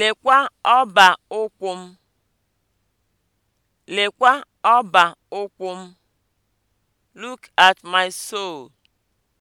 Lekwa ọba ụkwụ m! Lekwa ọba ụkwụ m! Look at my sole.